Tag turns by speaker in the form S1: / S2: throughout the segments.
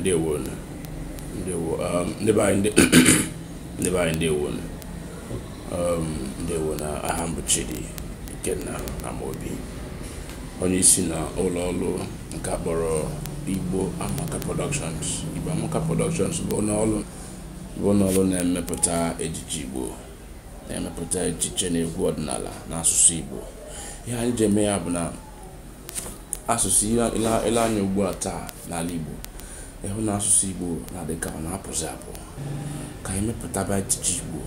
S1: ndewo ndewo um, ndebe anyị ndebe anyị ndewo ndewo um, na aha m Ikenna Amobi onye isi na ụlọ ọrụ nke akpọrọ Igbo Amaka Productions Igbo Amaka Productions bụ ụlọ ọrụ na-emepụta ejiji Igbo na-emepụta echiche na egwu ọdịnala na asụsụ Igbo ihe anyị ji eme ya bụ na asụsụ ile anya ugbu a taa n'ala Igbo ịhụ na asụsụ igbo na-adị ka ọ na-apụzi apụ ka anyị mepụtaba ejije igbo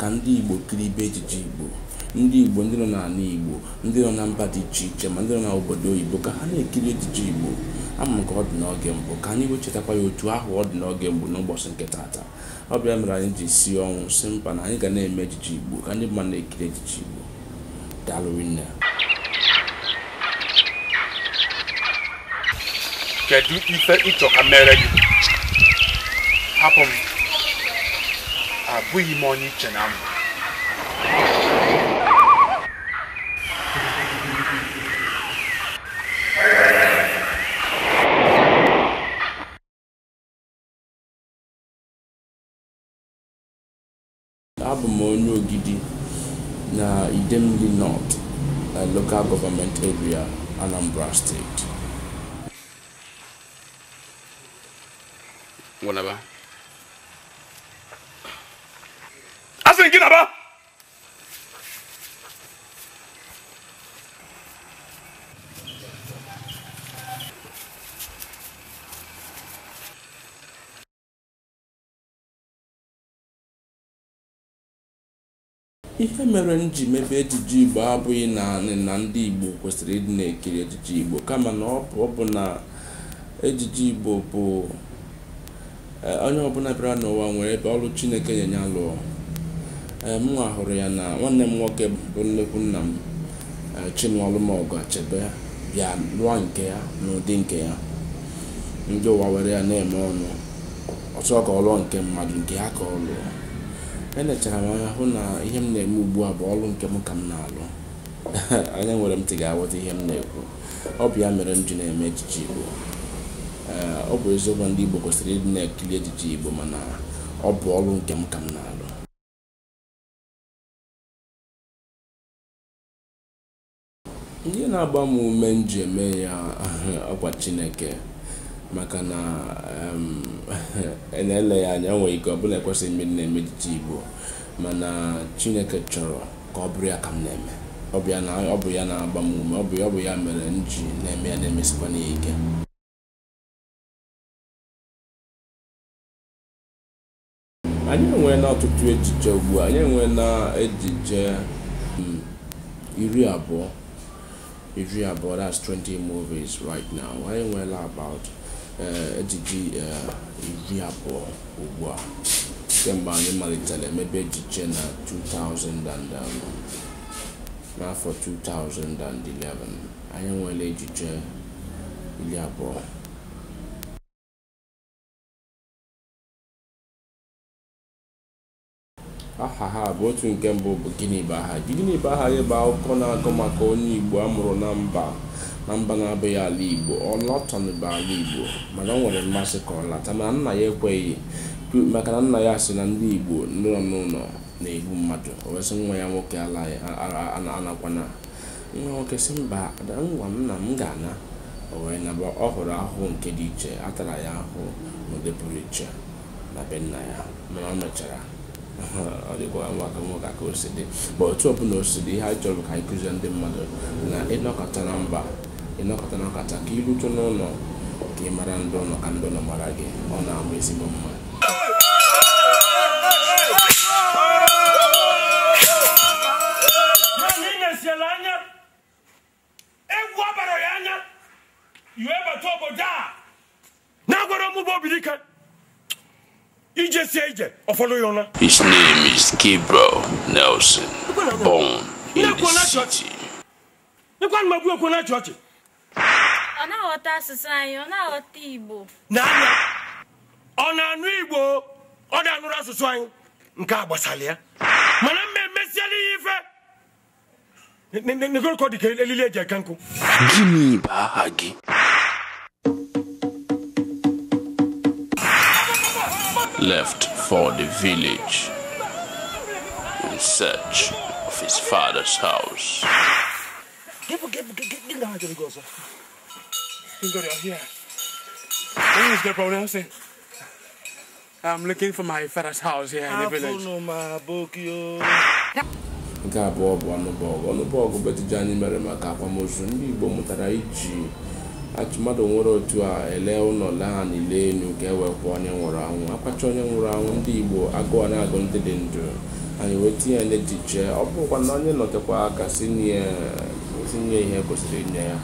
S1: ka ndị igbo kiri ibe ejije igbo ndị igbo ndị nọ n'ala igbo ndị nọ na mba dị iche iche ma ndị nọ n'obodo oyibo ka ha na-ekiri ejije igbo ama ka ọ dị n'oge mbụ ka anyị wechetakwa ya otu ahụ ọ dị n'oge mbụ n'ụbọchị nke taata ọ bịa mere anyị ji si ọnwụ si mkpa na anyị ga na-eme ejije igbo ka ndị mmadụ na-ekiri ejije igbo daalụ kedu ife ịchọ ka mere gị
S2: hapụ m abụghị m onye iche na mbụ abụ m onye ogidi
S1: na idemili nọt na local government area anambra steeti ihe mere m ji mebe ejije igbo abụghị naanị na ndị igbo kwesịrị ịdị na-ekiri ejiji igbo kama na ọ bụ na ejiji igbo bụ Eh, onye ọbụla bịara n'ụwa nwere ebe ọrụ chineke na alụọ eh, m nwa hụrụ ya na nwanne m nwoke bụ nnekwu nna m eh, chinụọlụmọgụ achebe bịa lụọ nke ya n'ụdị nke ya ndị ụwa were ya na-eme ọnụ ọsọ ka ọ lụọ nke mmadụ nke ya ka ọ lụọ enechara m anya hụ na ihe m na-eme ugbu a bụ ọrụ nke m ka m na-alụ anya nwere m ti ga-aghọta ihe m na-ekwu ọ bụ ya mere m ji na-eme ejije igbo ọ bụ eziokwu ndị Igbo kwesịrị ịdị na-ekiri ejije Igbo mana ọ bụ ọrụ nke m ka m na-alụ ihe na-agba m ume m ji eme ya ọkwa Chineke maka na e na-ele ya anya nwere ike ọ bụla ekwesịghị ime na-eme ejiji Igbo mana Chineke chọrọ ka ọ bụrụ ya ka m na-eme ọ bụ ya na-agba m ume ọ bụ ya mere m ji na-eme ya
S2: na-emesikwa ike
S1: anyị enwee na ọtụtụ echiche ugbu anyị enwee na echiche hmm, iri abụọ iri abụọ that's 20 movies right now anyị enweela about eh, ejije eh, iri abụọ ugbu a kemgbe anyị malitere emebe ejije na 2000 and um, n'afọ 2011 anyị enweela ejije iri abụọ aha ha bụ otu nke mbụ bụ gịnị bụ aha gịnị bụ aha gị bụ akụkọ na-akọ maka onye igbo a mụrụ na mba na mba na-abụghị ala igbo ọ lọtọnụba ala igbo mana ọ nwere mmasị ka ọ lata mana nna ya ekweghị maka na nna ya sị na ndị igbo nụlọ n'ụlọ na-egbu mmadụ o wesị nwa ya nwoke anakwana nwa nwoke si mba ngwa nna m ga-ana o na bụ ọ hụrụ ahụhụ nke dị iche atara ya ahụ n'ụdị pụrụ iche na be nna ya mana ọ mechara ọ dịkwa nwaka nwoke ka o dị otu ọbụla o dị ihe a chọrọ ka anyị ndị mmadụ na ịnọkọta na mba ịnọkọta na ọkata ka ịrute n'ụlọ ka ị mara ndị ụlọ ka ndị ụlọ mara gị ọ na-ama ezigbo mma
S2: a ije sie ije ọfọdụ ya ụra
S1: his name is Gabriel Nelson
S2: born in the city
S1: ọ na-aghọta asụsụ anyị ọ na-aghọta Igbo
S2: n'anya ọ na-anụ Igbo ọ na-anụrụ asụsụ anyị nke a gbasara ya mana mmemme emesiela ihe ife dịka elili eji eke nkụ gịnị bụ aha gị
S1: left for the village in search of his father's house.
S2: Get, get, get, get down here, go, Go
S1: here. Where is the problem, I'm looking for my father's house here in the village. No, my book, yo. nke abụọ bụ ọnụbọgụ ọnụbọgụ betụju anyị mere maka akwamozu ndị Igbo mụtara iji achụmadụ nwere otu a ele ụlọ ha n'ile elu ga e onye nwụrụ anwụ akpacha onye nwụrụ anwụ ndị igbo agụọ na-agụ ndị dị ndụ anyị wee tinye ya n'echiche ọ bụkwa na onye nọtekwa aka tinye ihe kwesịrị inye ya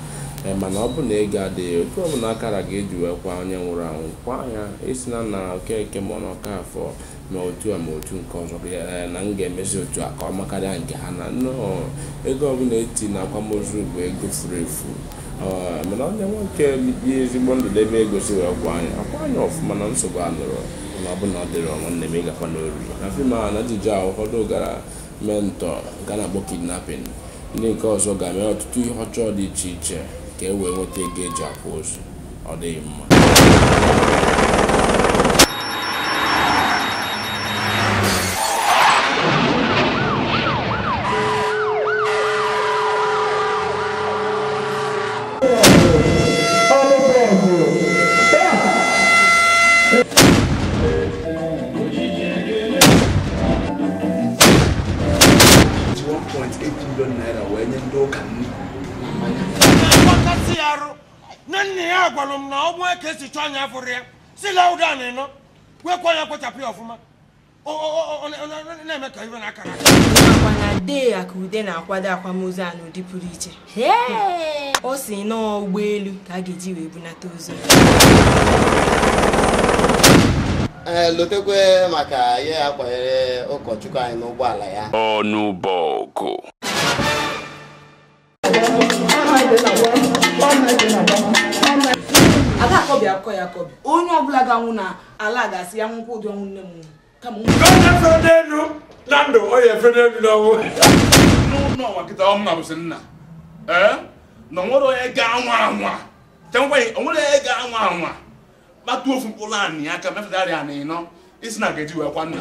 S1: eh, mana ọ bụ na ego adịghị otu ọbụla akara ga-eji wee onye nwụrụ anwụ kwa anya isi na na okeke ma n'ọka afọ ma otu a ma otu nke ọzọ eh, na m ga-emezi otu a ka ọ makarịa nke ha na nnọọ ego ọbụla eti na akwamozu bụ ego furu efu Ah, mana onye nwoke bi ezigbo ndụ debe ego si wee kwa anya akwa anya ọfụma na nsogbu anụrụ na ọbụna ọ dịrị nwanne m ịgakwa n'oriri na fim a na ajụjụ ahụ ụfọdụ gara mentọ nke a na-akpọ kidnapping ndị nke ọzọ ga-eme ọtụtụ ihe ọchọọ dị iche iche ka e wee nweta ego eji akwa ozu ọ dịghị mma
S2: naira wee nye ndị ụka nri ya arụ na nna ya gwara m na ọgbụ eke esi chọọ anya fụrụ ya si la na ịnọ kwekwa ya kpochapụ ya ọfụma na-eme ka iwe na-akara na dee ya ka ude na-akwado akwamozu a n'ụdị pụrụ iche ọ si nọọ ụgbọelu
S1: ka a ga-eji wee bunata ozu eh, lotekwe maka ya ụkọchukwu anyị n'ụgbọala ya ọnụ bọgụ
S2: ada akọbi akọ onye ọbụla ga-anwụ na ala ga-asị ya nwụkwa ụdị ọnwụ nne m kama elu na ndụ onye efere elu kịta ọ nna nna na onwere onye ga-anwa anwa tenkweghị onwere onye ga-anwa anwa kpatuo ofu mkpụrụ anị aka na ịnọ isi na ga-eji wee kwa nna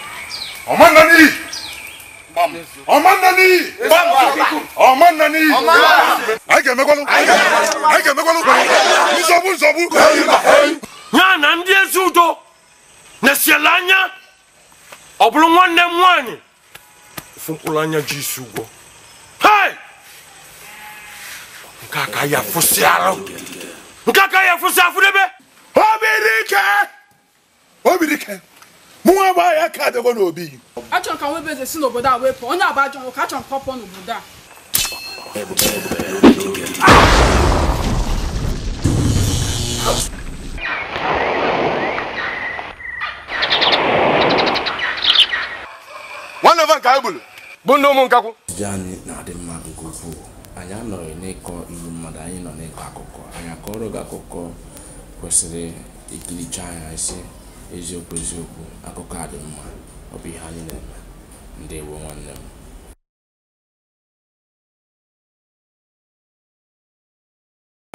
S2: ọma nna n'iyi ọma nna n'iyi ọma nna n'iyi anyị ga-emekwanụ anyị ga-emekwanụ nzọgbu nsogbu ya na ndị ezi udo na-esiele anya ọ bụrụ nwanne m nwaanyị ofu mkpụrụ anya ji isi ụgwọ nke a ka ya afụsị arụ nke a ka ya afụsị afụdebe obirike obirike mụ nwa gbaa ya ka adịgo n'obi achọrọ ka nwebe eze
S1: si n'obodo a wepụ onye abụ ajọ nwoke achọrọ ka ọ pụọ n'obodo
S2: a nwanne va nke anyị gburu bụ ndị ụmụ nkakwụ
S1: ejije anyị na-adị mma nke ukwuu anyị anọghị n'ịkọ iwu mmadụ anyị nọ n'ịkọ akụkọ anyị akọrọ gị akụkọ kwesịrị ikiricha anya isi eziokwu eziokwu akụkọ a dị mma ọ bụ ihe anyị na-eme
S2: ndị ndewo nwanne m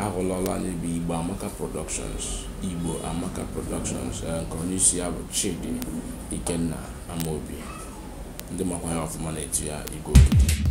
S1: ahụlọla anyị bụ igbo amaka productions igbo amaka productions eh, nke onye isi ya bụ chidi ikenna amaobi ndị makwa ya ọfụma na etu ya igwe okike